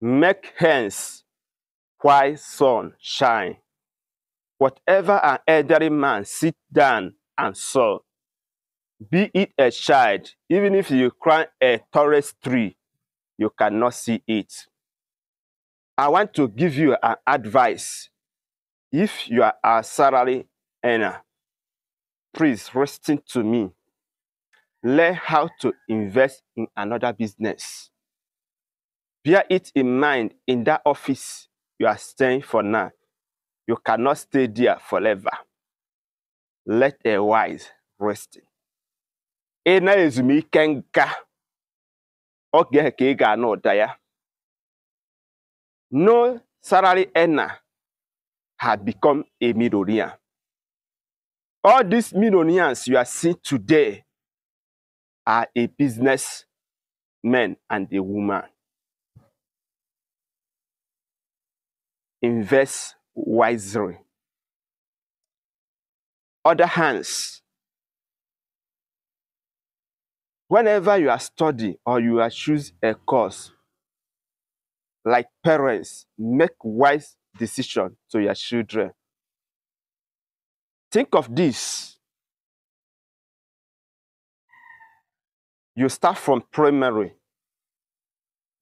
Make hence while sun shine. Whatever an elderly man sit down and saw, be it a child, even if you climb a tallest tree, you cannot see it. I want to give you an advice. If you are a salary earner, please listen to me. Learn how to invest in another business. Bear it in mind in that office you are staying for now. You cannot stay there forever. Let a wise rest. Ena na-ezumike nka oge ka ị ga-anụ ụda ya. No salary Ena had become a millionaire. All these millionaires you are seeing today are a businessman and a woman. invest wisely. Other hands, whenever you are studying or you are choose a course, like parents, make wise decision to your children. Think of this. You start from primary.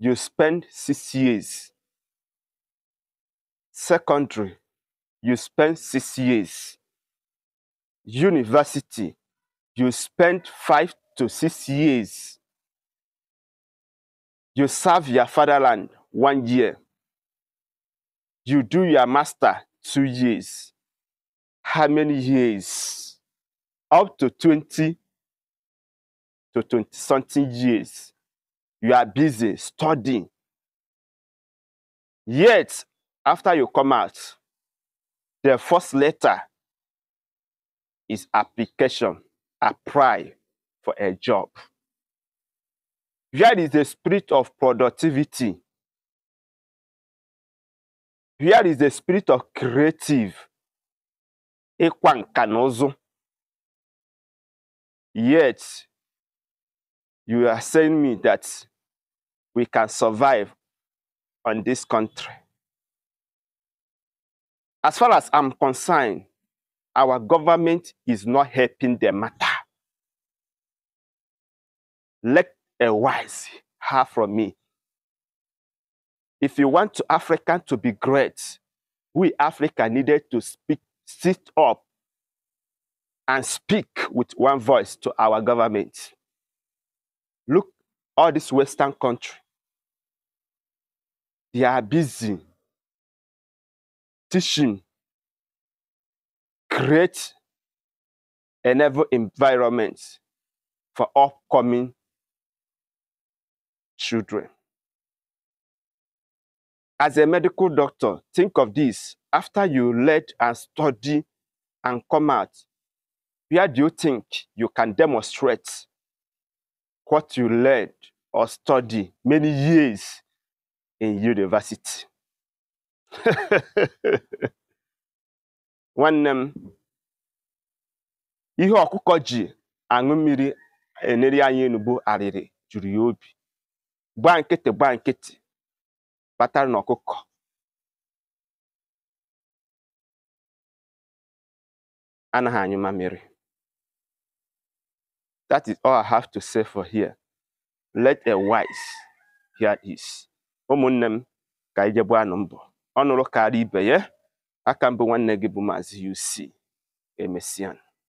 You spend six years secondary, you spend six years. University, you spend five to six years. You serve your fatherland one year. You do your master two years. How many years? Up to 20 to 20 something years. You are busy studying. Yet, after you come out, the first letter is application, apply for a job. Here is the spirit of productivity. Here is the spirit of creative. Yet, you are saying me that we can survive on this country. As far as I'm concerned, our government is not helping the matter. Let a wise hear from me. If you want to Africa to be great, we Africa needed to speak, sit up and speak with one voice to our government. Look, all this Western country, they are busy Create a enable environment for upcoming children. As a medical doctor, think of this. After you learn and study and come out, where do you think you can demonstrate what you learned or study many years in university? nwanne m ihe ọkụkọ ji aṅụ mmiri eneri anyị enugbo arịrị juru ya obi gba nkịtị gba nkịtị kpatara na ọkụkọ anaghị anyị mamịrị that is all i have to say for here let a wise hear this ụmụnne m ka anyị jegbu anụ mbọ ọnụrụ karịa ibe ya aka mbụ nwanne gị bụ Maazị UC Emesian